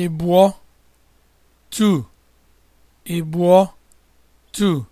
ịbụọ two ịbụọ two